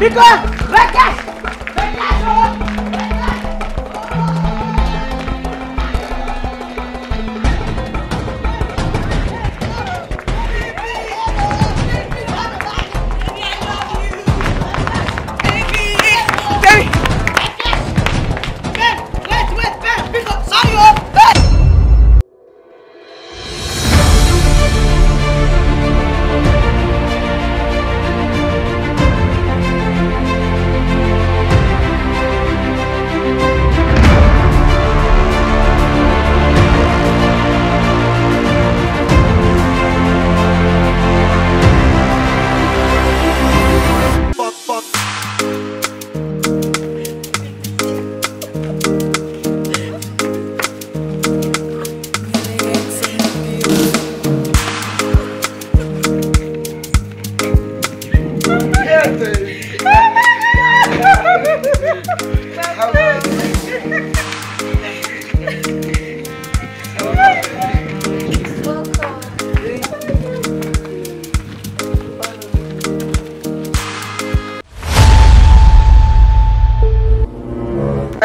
李哥，来干！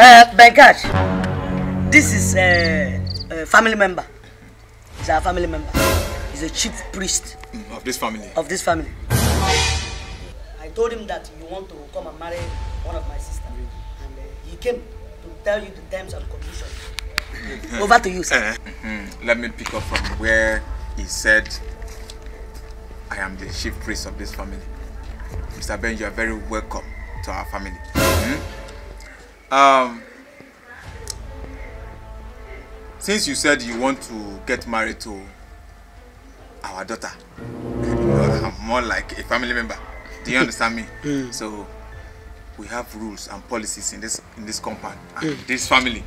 Uh, eh, Benkaj, this is a, eh, a eh, family member. He's our family member. He's a chief priest. Of this family? Of this family. I told him that you want to come and marry one of my sisters. And uh, he came to tell you the terms and conditions. Over to you, sir. Uh, mm -hmm. Let me pick up from where he said, I am the chief priest of this family. Mr. Ben, you are very welcome to our family. Um, since you said you want to get married to our daughter, more like a family member. Do you understand me? Mm. So we have rules and policies in this in this compound and mm. this family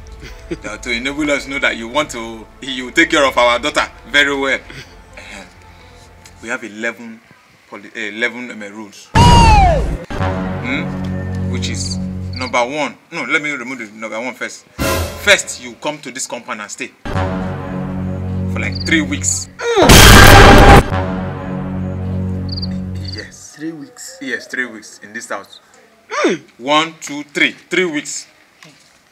that to enable us know that you want to you take care of our daughter very well. Uh-huh. we have 11 poli 11 um, rules, mm? which is Number one, no, let me remove the number one first. First, you come to this compound and stay for like three weeks. Yes. Three weeks? Yes, three weeks in this house. Hmm. One, two, three. Three weeks.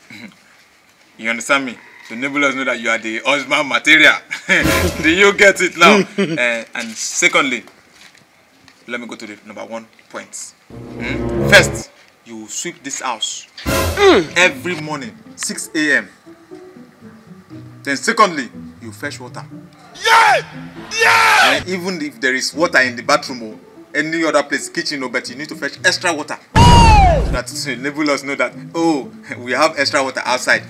you understand me? The neighbors know that you are the husband material. Do you get it now? uh, and secondly, let me go to the number one point. Mm? First, you sweep this house mm. every morning 6 a.m. Then secondly, you fetch water. Yeah! Yeah! And even if there is water in the bathroom or any other place, kitchen or but you need to fetch extra water. Oh! So that to enable us know that, oh, we have extra water outside.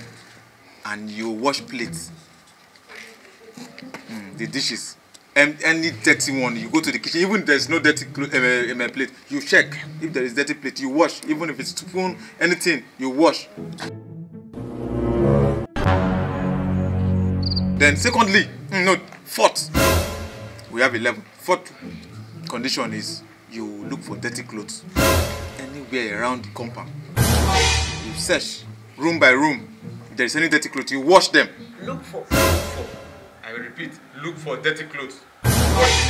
And you wash plates. Mm, the dishes. and any dirty one you go to the kitchen even if there's no dirty eh, eh, in my plate you check if there is dirty plate you wash even if it's spoon anything you wash then secondly hmm, no fourth we have 11 fourth condition is you look for dirty clothes anywhere around the compound you search room by room if there is any dirty clothes you wash them look for I repeat, look for dirty clothes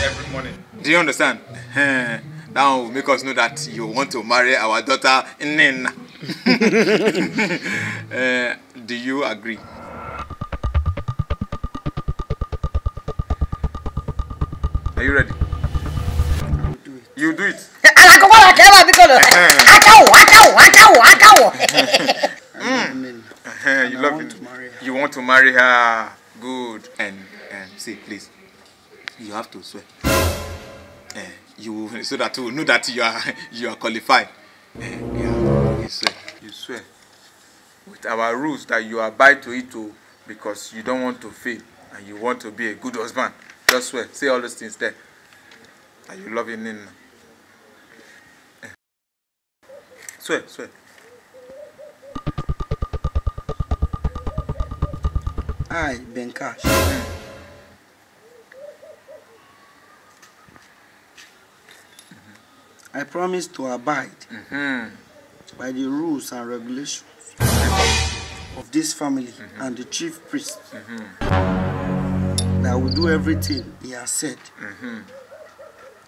every morning. Do you understand? Now will make us know that you want to marry our daughter Nina. uh, do you agree? Are you ready? you do it. Alakoko wa kẹwa bi kolo. Ajawo, ajawo, ajawo, mm. eh, You love it. You want to marry her. Good. And say please you have to swear uh, you so that you know that you are you are qualified uh, yeah, you swear you swear with our rules that you abide to it o oh, because you don't want to fail and you want to be a good husband just swear say all those things there Are you loving him nina uh, eh. swear swear. Hi, Benkash. Mm. promise to abide mm -hmm. by the rules and regulations of this family mm -hmm. and the chief priest. Mm -hmm. That I will do everything he has said. Mm-hmm.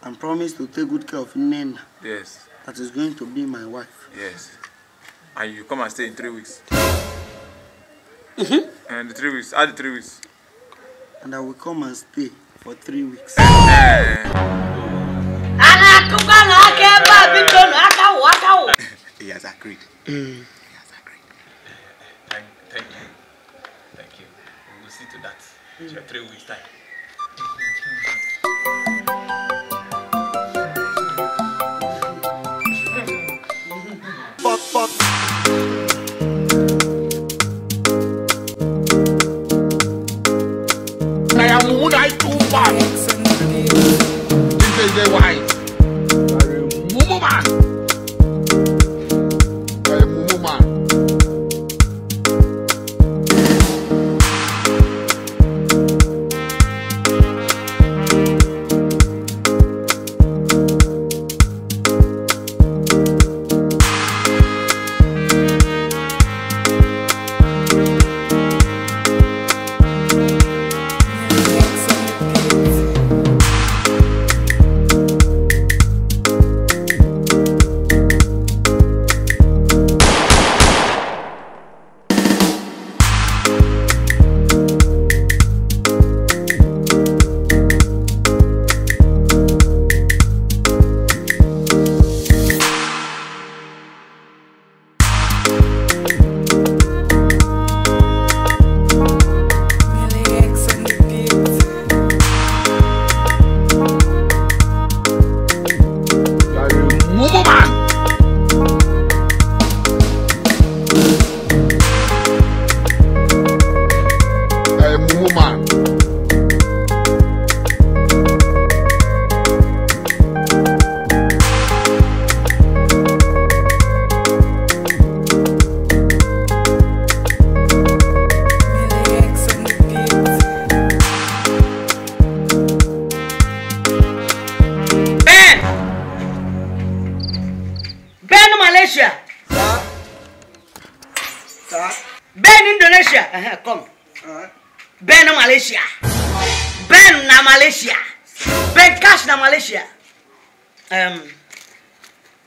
And promise to take good care of Nena. Yes. That is going to be my wife. Yes. And you come and stay in three weeks. Mm-hmm. And the three weeks, add the three weeks. And I will come and stay for three weeks. big loan akawo he has agreed. Mm. he has agreed. thank, thank you thank you we will see to that mm. in three weeks time. Ben Indonesia, uh -huh, come. Uh Malaysia. Ben na Malaysia. Ben cash na Malaysia. Um,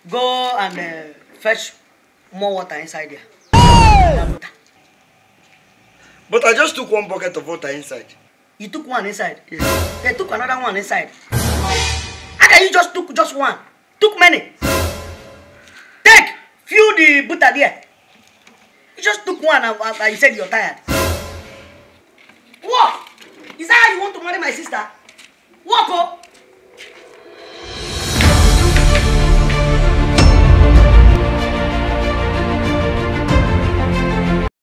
go and uh, fetch more water inside there. But I just took one bucket of water inside. You took one inside? Yes. They took another one inside. How can you just took just one? Took many. Take, fill the butter there. You just took one and, and, and you said you're tired. What? Is that how you want to marry my sister? What, oh?